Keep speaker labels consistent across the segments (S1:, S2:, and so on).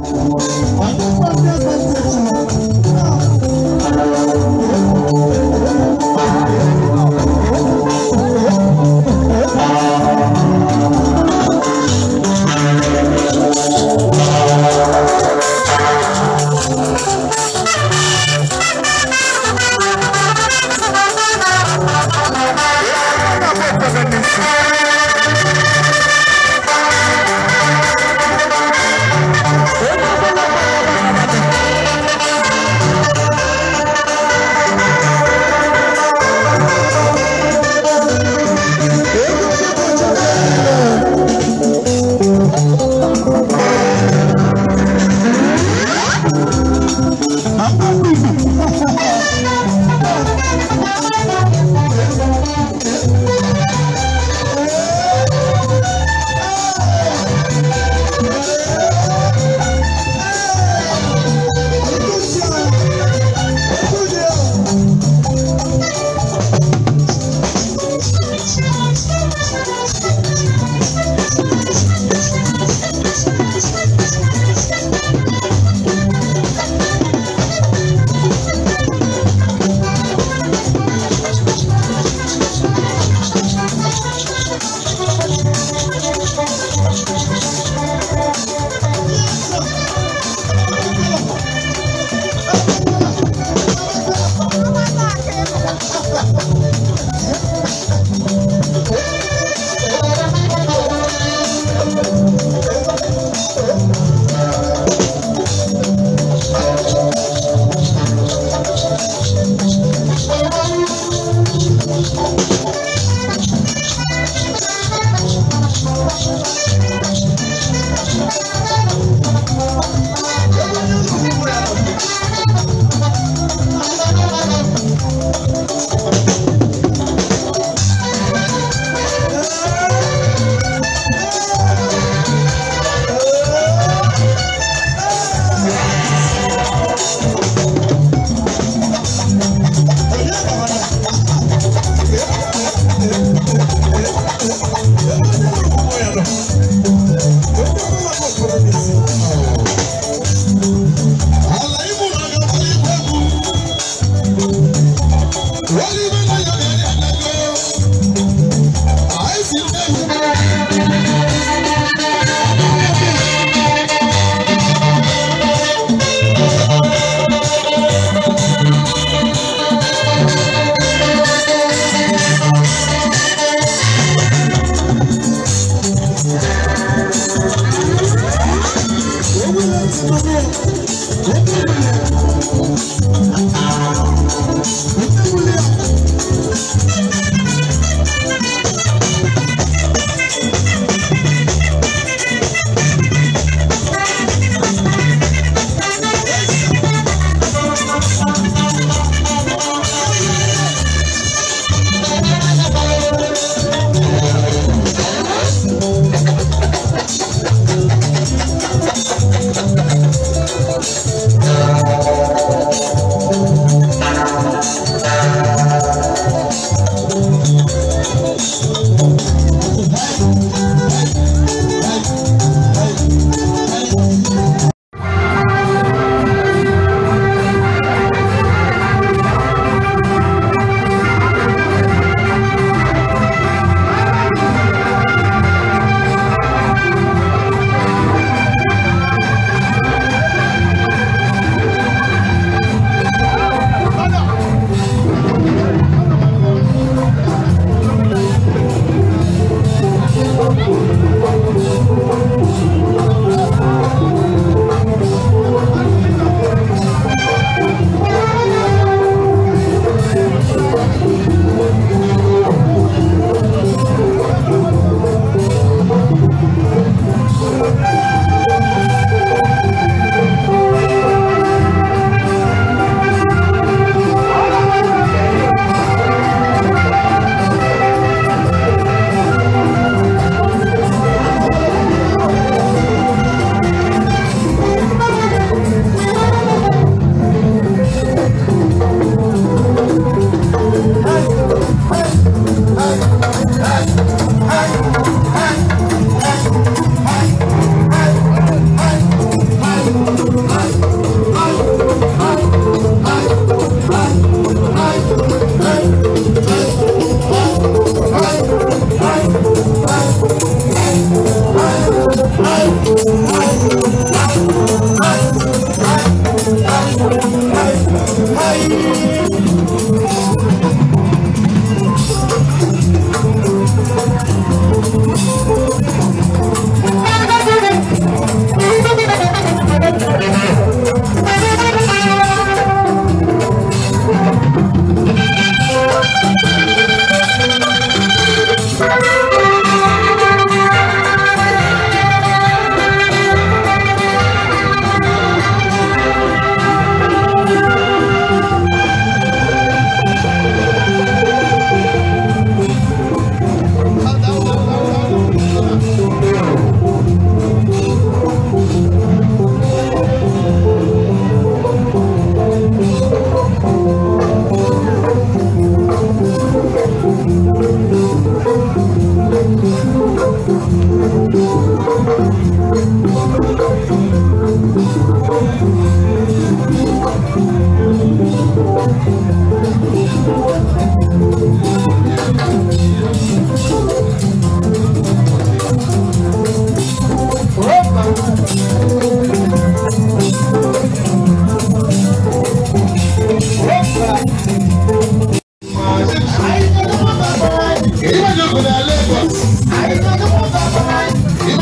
S1: I'm Thank you.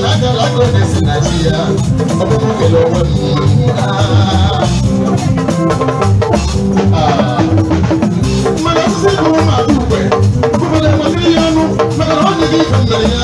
S2: Lago this in Nigeria. Obo mo ke lowo ni. Ah.
S1: Mana se ko ma dupe. Ko le mo ti yanu. Mana ho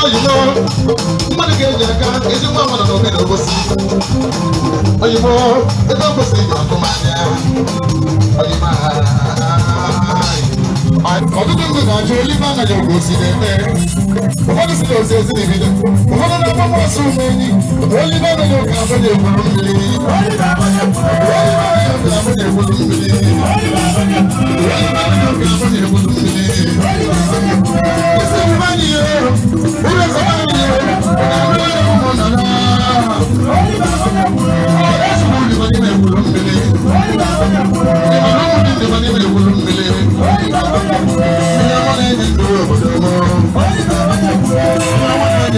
S2: sure you know mmadụ ga-eji aka ezigbo amadụ na obodo gosi oyibo ebe o kwesịrị ji ọkụma anya oyibo ọtụtụ àjò líbànà yóò kò sí lẹ́tẹ̀. Ụfọdụ si na osi osi na ebido. Ụfọdụ na-akpọkọ ọsọ ụmụ enyi. Olibana yóò kà abụ na egburu mmiri. Olibana yóò kà abụ na egburu mmiri. Olibana yóò kà abụ na egburu mmiri. Isi ụmụ anyị yoo. Ụlọ esi anyị yoo. Ụlọ esi ụmụ nọ naa. Olibana yóò kà abụ
S3: na egburu mmiri.